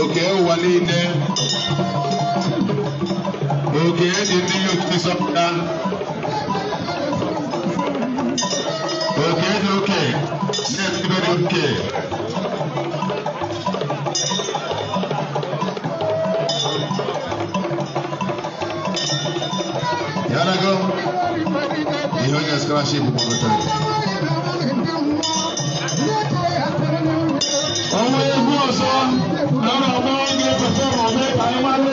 òkè wọlé ilé òkè ẹni ní yóò ti sọpọta òkè ẹni òkè ní ẹni tí bẹ́ẹ̀ ni òkè. Yàrá gan, ìhọ́jà scholarship kò kọ̀ọ̀kan. ọmọ egun ọ̀sọ́ lọ́nà ọmọ oúnjẹ pẹ̀tẹ́ ọmọ mẹ́ta ẹ máa lọ.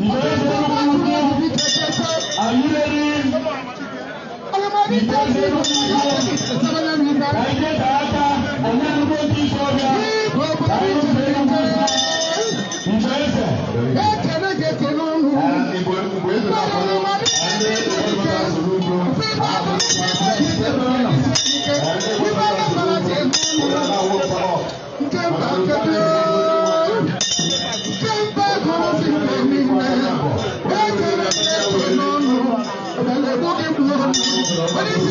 Are you ready? I get that. What is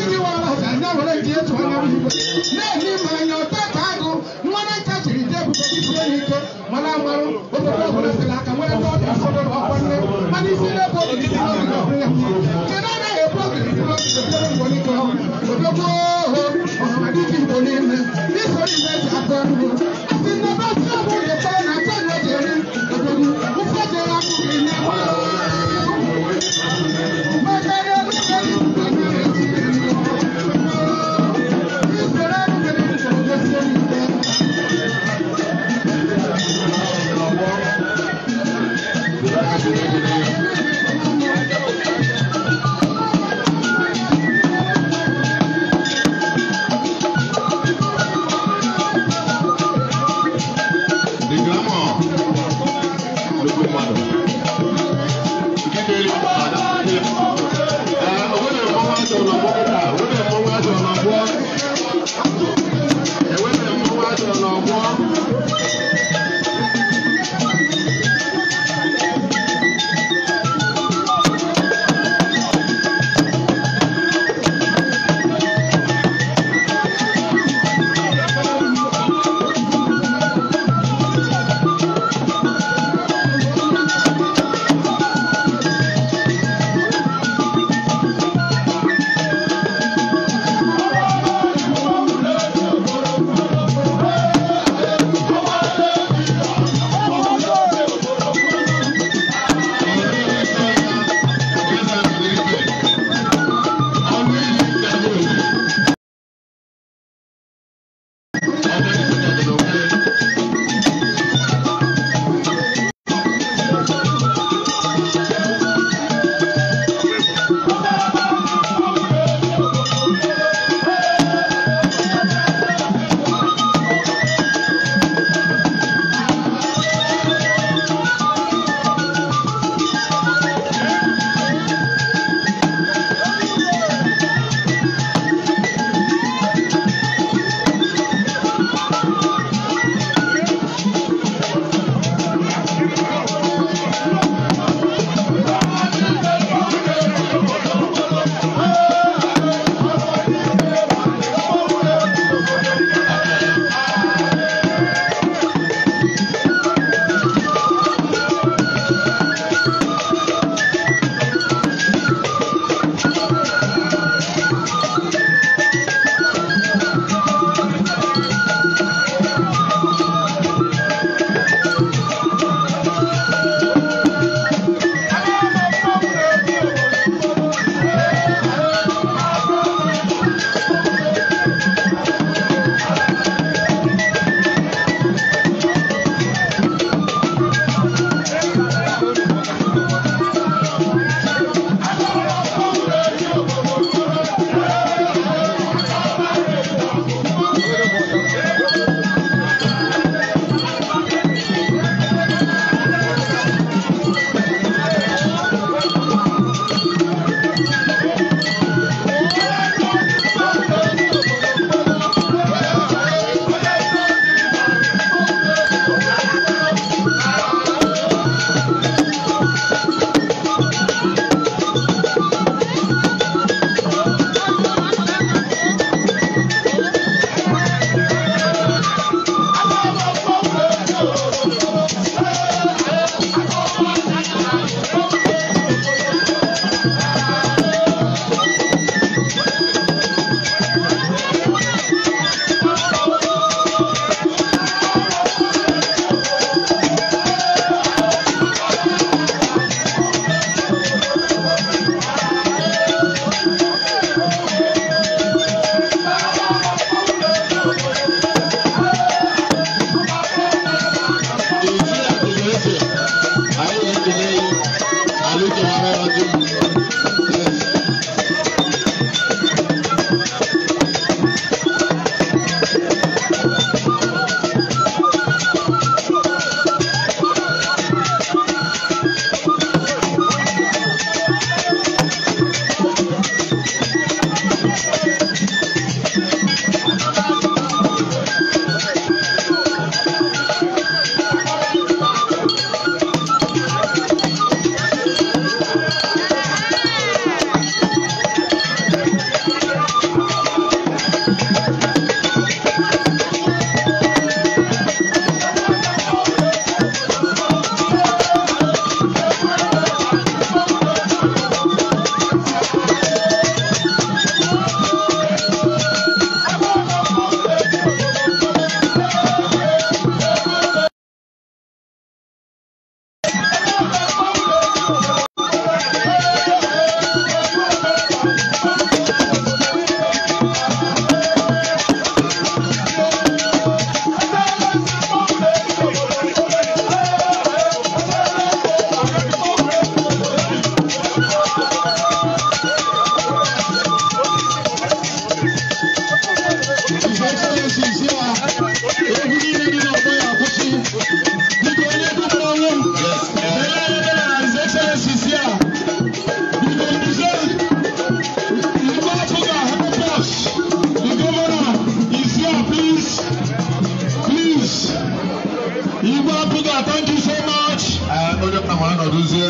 ma anọdụzie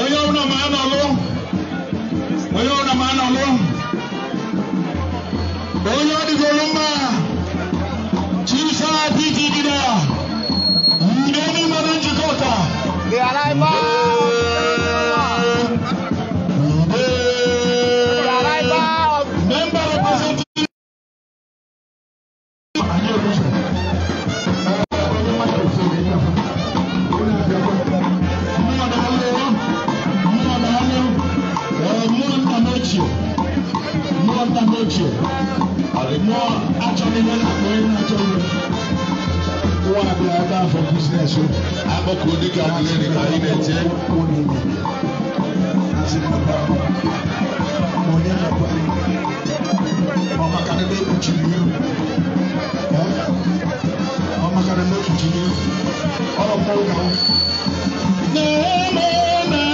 onye ọbụla ma anọlụ onye ọbụla ma anọlụ onye ọ mma chisa dịgidida yide n'ime njikọ ka koraa for business o akɔkɔ odi ka kule ne ka yi na ɛkyɛ. Mama kan ne kutu ni mama kan ne kutu ni ɔlɔpɔ kan. Naa naa naa.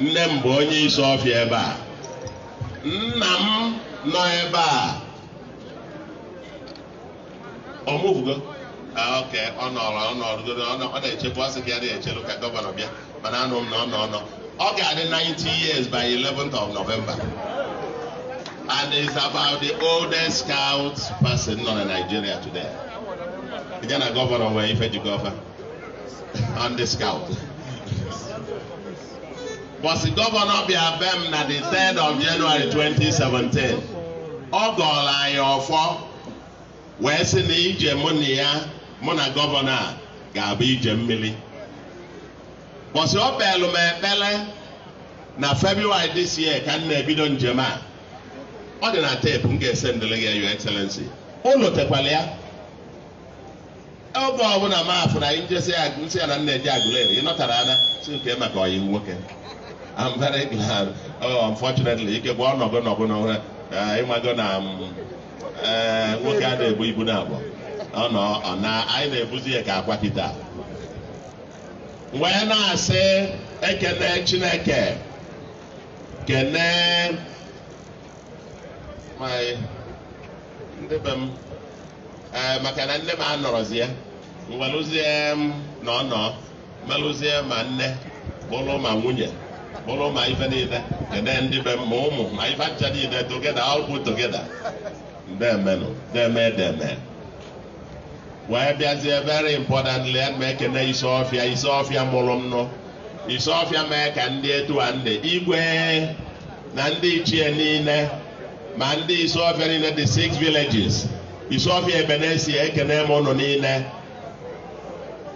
nne m bụ onye isi ọfịa ebe a nna m nọ ebe a ọmụbugo Ah, okay, ọ nọrọ ọ nọrọgoro ọ na-echebu asị ka ya na-echelu ka gọvanọ bịa mana anụ m na ọ nọ ọ nọ ọ ga-adị 90 years by 11th of November and it is about the oldest scout person nọ na Nigeria today ya na gọvanọ nwere ife ji gọva on the scout bọsị gọvanọ bịa be m na the 3rd of January 2017 ọ gọrọ anyị ọfọ wee sị na ije mụ na ya mụ na gọvanọ a ga-abụ ije mmiri bọsị ọ kpelụ m ekpele na February this year ka m na-ebido njem a ọ dị na teepu m ga-ese ndịrị gị Your Excellency ụlọ tekwala ya oge ọbụla m afụ na anyị njesi ya nsị ya na nna eji agụleri ị nọtara ada si nke maka ọyị nwoke I'm very glad oh unfortunately ike bụ gwa ọnọgo n'ọbụla ịmago na um, eh, nwoke a na-ebu ibu na abụọ Ọ ọnọ ọna anyị na-ebuzi ya ka agwa kịta wee na-asị ekele chineke kene nwanyị ndị be m e, maka na nne m anọrọzie nwelụzie m na ọnọ melụzie ma nne bụrụ ma nwunye bụrụ ma ife niile kene ndị be m ma ụmụ ma ife aja niile togeda ọgwụ togeda eme deme eme. wee bịazie very important lead ma na isi ọfịa isi ọfịa mụrụ m nọ isi ọfịa mee ka ndị etua ndị igwe na ndị ichie niile ma ndị isi ọfịa niile the six villages isi ọfịa ebenesi ekene m ụnụ niile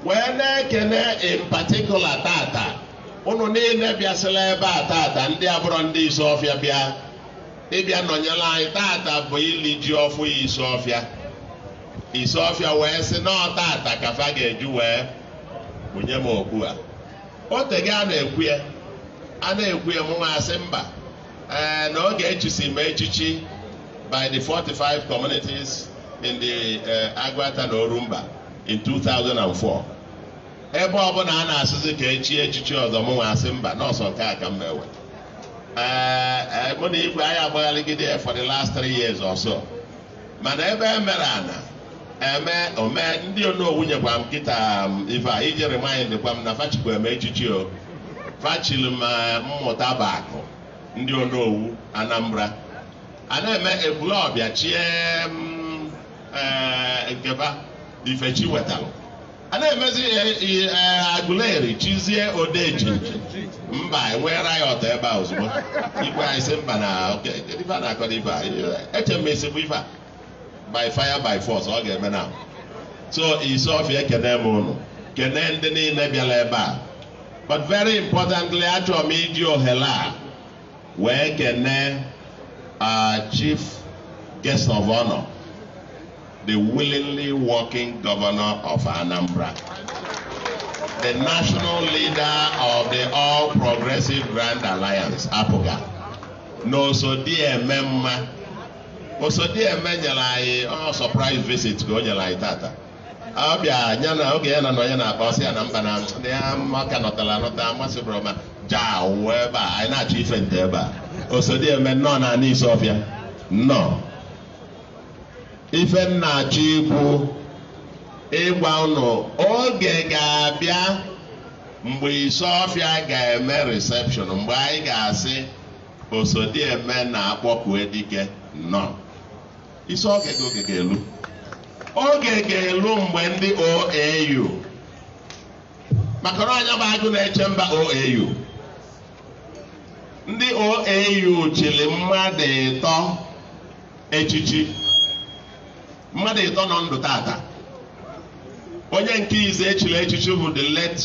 wee na-ekene in particular tata ụnụ niile bịasịla ebe a tata ndị abụrọ ndị isi ọfịa bịa ịbịa nọnyere anyị tata bụ ili ji ọfụ isi ọfịa Isiofia wee sị n'ọtata ka fa ga-eju wee bunye m okpu a otege a na-ekwu ya a na-ekwu ya asị mba ee eh, na oge echusi m echichi by the 45 communities in the eh, Agwata na Orumba in 2004 ebe ọbụla a na-asụzi ka echi echichi ọzọ asị mba n'ọsọ nke a ka m ewe ee eh, mụ na igwe anyị agbaghaligide for the last three years or mana ebe e mere ana eme ome ndị onowu nyekwa m kịta um, ife a iji rimindkwa m na fachikwa eme echichi o fachili m mmụta bakụ ndị onowu anambra a na-eme ebule ọbịa chie um, eh, nkeba ifechi wetalụ a na-emezi e, agụleri chizie odeji mba enwere ya ọtọ ebe a ozugbo ikwe anyị si mba na ife a na-akọ ife a eche esi bụ ife a by fire by force ọ ga-eme na so isi ọfịa ekene m ụnụ kene ndị niile bịara ebe a but very importantly achọrọ m iji ohere a wee kene chief guest of honor the willingly working governor of Anambra the national leader of the All Progressive Grand Alliance APOGA na oso dị eme mma eme nyere anyị ọ sọpraịs visit ka o nyere anyị tata ọ bịa ya na oge ya na nọ ya na aba ọsị ya na mba na ndị maka nọtara anọta mmasị bụrụ ma jaa wee ebe a anyị na-achọ ife nte ebe a osodieme nnọọ na ana isi ọfịa nnọọ ife na-achọ ikwu ịgwa ụnụ oge ga-abịa mgbe Isofia ga-eme reception mgbe anyị ga-asị eme na-akpọku edike nnọọ isi oge oge ga-elu oge ga-elu mgbe ndị OAU maka na anya bụ agụ na-eche mba OAU ndị OAU chịrị mmadụ ịtọ echichi mmadụ ịtọ nọ ndụ tata onye nke ize echiri echichi bụ the late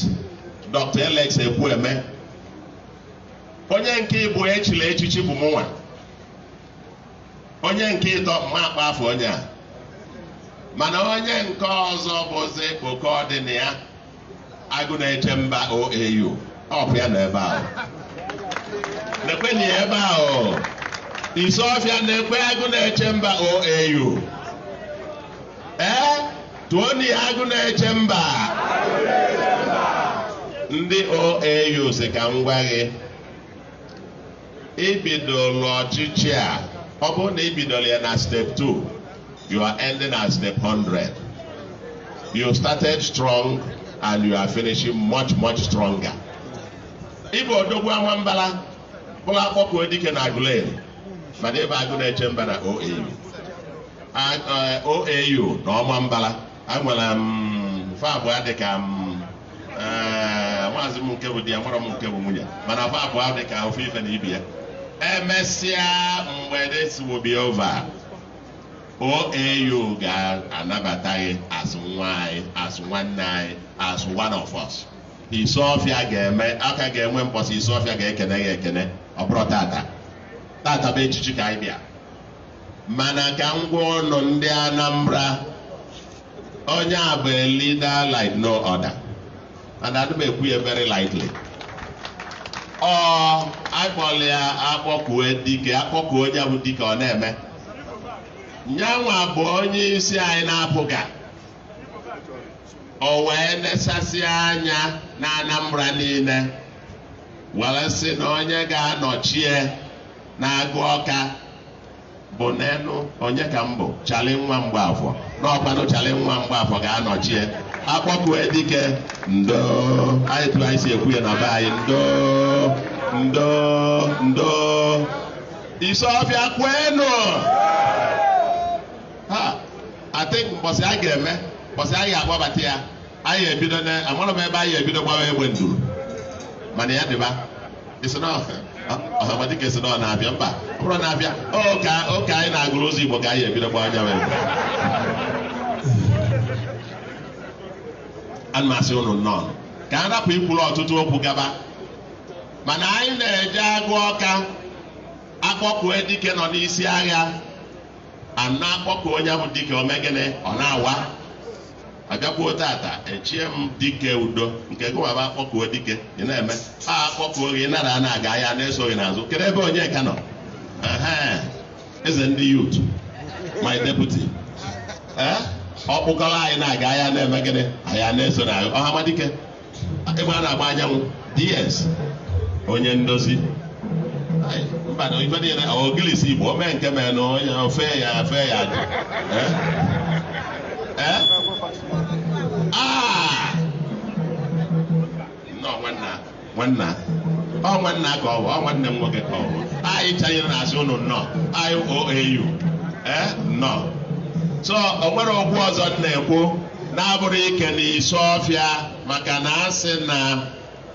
Dr. Alex Ekwueme onye nke ịbụ echiri echichi bụ mụnwa onye nke ịtọ mma akpa afọ onye a mana onye nke ọzọ bụzi oke ọdịna ya agụ na-eche mba oau ọpụ ya n'ebe ebe ahụ na ya ebe ahụ isi ọfịa na-ekwe agụ na-eche mba oau ee tụọ na ya agụ na-eche mba ndị oau si ka m gwa gị ibidolo ọchịchị a ọ bụrụ na ị bidoro ya na step 2 you are ending at step 100 you started strong and you are finishing much much stronger ịbụ odogwu ama mbala bụrụ akpọkuo dike na agụlen mana ebe agụ na-eche mba na OAU uh, OAU na ọma mbala enwere m um, fa abụọ dịka m um, uh, maazị m nke bụ di ya mara m nke bụ nwunye mana fa dịka ofe ife na ibi ya emesịa mgbe this will be over OAU ga-anabata gị as nwa anyị as nwanne anyị as one of us ọfịa ga-eme aka ga-enwe mkpọsa ọfịa ga-ekene gị ekene ọ bụrụ tata tata bụ echichi ka anyị bịa mana ka ngwa ọnụ ndị Anambra onye agba bụ leader like no other and ya very lightly ọ akpọla ya akpọkuo dike akpọkuo ya bụ dike ọ na-eme nyanwa bụ onye isi anyị na-apụga o wee nesasị anya na Anambra niile were sị na onye ga-anọchie na-agụ ọka bụ n'elu onye ka m bụ chali nwa mgbe afọ n'ọkwanụ chali nwa mgbe afọ ga-anọchie akpọkụ edike ndo anyị tụrụ anyị si ekwu ya na be anyị ndo ndo ndo Isofia kwenu ha atịk mbọsị a ga-eme mbọsị a ga-akpọbata ya anyị ebido na amarọ m ebe anyị ebido gbawa egbe nduru mana ya dịba ọhamadike si na ọ na-abịa mba ọ bụrụ na-abịa oke anyị na-agụrụ ụzọ Igbo ka anyị ebido gbawa anya ana asị unu nnọọ ka a rapụ ikwuru ọtụtụ okwu gaba mana anyị na-eje agụ ọka akpọkue dike nọ n'isi agha ana akpọkụ onye bụ dike omegịnị ọ na-awa agakwuo tata echie m dike udo nke gụwaba akpọkuo dike ị na-eme a akpọkuo gị nara na-aga ya na-eso gị n'azụ kedu ebe onye ka nọ eze ndị yutu my deputy ọ kpụkọrọ anyị na-aga ahịa na-eme gịnị ahịa na-eso na ọhamadike ebe a na-agba anyanwụ ds onye ndozi mba na ife niile ogilisi igbo o nke mee na onye ofe ya efe ya dị ah! nwanna ọ nwanna ka ọ bụ ọ nwanne m nwoke ka ọ bụ anyị chanyere na asị ụnụ nnọọ anyị nnọọ so o nwere okwu ọzọ m na-ekwu na-abụrụ ike na isi ọfịa maka na asị na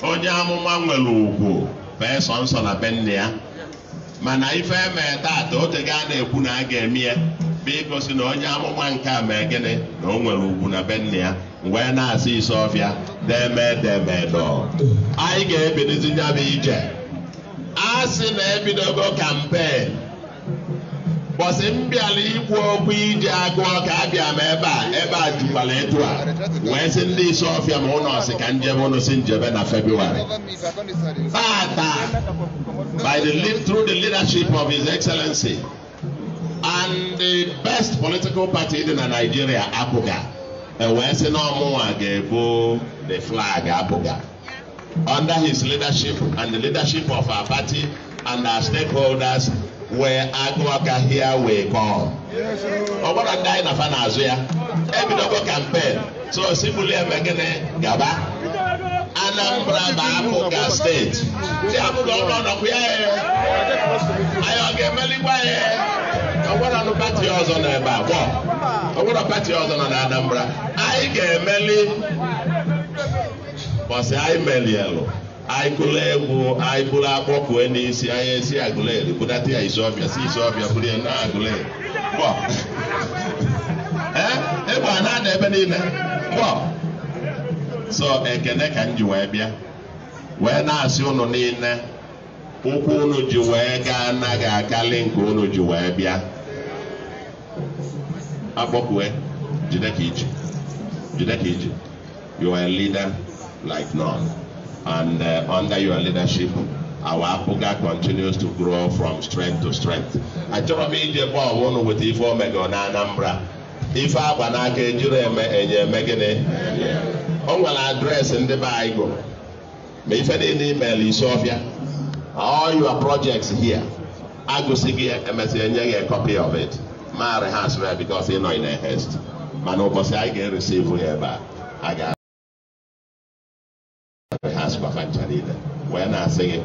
onye amụma nwere ugwu fee sọ nsọ na be ya mana ife eme taata otego a na-ekwu na a ga-eme ya bụ na onye amụma nke a mee gịnị na o nwere ugwu na be nne ya wee na-asị isi ọfịa deme deme anyị ga-ebilizi nyabụ ije a sị na ebidogo kampen bọsị mbịala ikwu okwu iji agụọ ka abịa m ebe a ebe a jukwala etu a wee sị ndị isi ọfịa ma ụnọ sị ka njebe ụnụ si njebe na febụwarị tata by the lead through the leadership of his excellency and the best political party dị na Nigeria apụga ewee sị na ọmụnwa ga-ebu the flag apụga under his leadership and the leadership of our party and our stakeholders wee agụ aka hia wee kpọọ ọ gwara ndị anyị nafa n'azụ ya ebidogo kampen so simuli eme gịnị gaba anambra ma afọka steeti si apụga ụlọ ọnọkwụ ya e. anyị ọ ga-emelikwa ya e. ọgwara pati ọzọ nọ ebe a gwọ ọgwara pati ọzọ nọ na anambra anyị ga-emeli bọsị anyị melielụ anyị gụla egwu anyị bụrụ na isi, anyị esi agụleri budata ya ọbịa, si Izuọfịa bụrụ ya na agụleri eh, egbe a na-ada ebe niile so ekene ka m ji wee bịa wee na-asị ụnụ niile ụkwụ ụnụ ji wee gaa anaghị akalị nke ụnụ ji and uh, under your leadership, our Apuga continues to grow from strength to strength. Achọrọ m ije bọọlụ ụnụ weta ife omego na Anambra. Ife agba n'aka ejiri eme enye eme gịnị? O nwere adreesị ndị be anyị gụrụ. Ma ife dị n'email Isiofia. All your projects here. Agụsị gị emesị enye gị a copy of it. Maara ha asịrị ya because ị nọ in a haste. Mana ụbọchị anyị ga-eresivu ya ebe a. maka ncha niile wee na-asị gị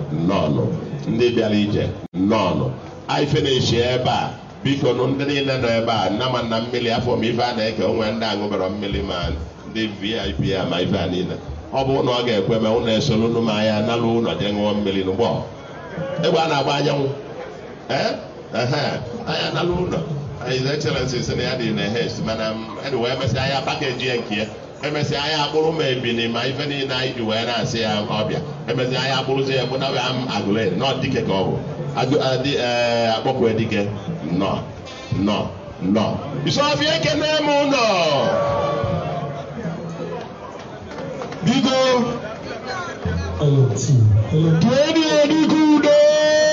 ndị bịara ije nnọọnụ ife na eche ebe a biko ndị niile nọ ebe a nna m nna mmiri afọ m ife a na-eke onwe ndị aṅụbara mmiri ma ndị vip a ma ife niile ọ bụ ụlọ ọ ga-ekwe ma ụlọ esoro anya na-agba anyanwụ anya na ya dị na mana pakeji ya nke ya emesịa anyị akpụrụ ma ebili ma ife niile anyị ji wee na-asị ya ọbịa emesịa anyị akpụrụ ya gbunawe m agụle nọọ dike ka ọ bụ e, akpọkwe dike nọ nọ nọ isọfi ekene m ụlọ biko dịenụ dike udo